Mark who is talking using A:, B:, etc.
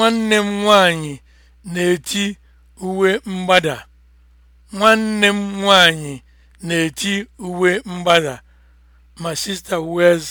A: Nwanne m nwanyị na-eti uwe mgbada. Nwanne m nwanyị na-eti uwe mgbada. My sister wears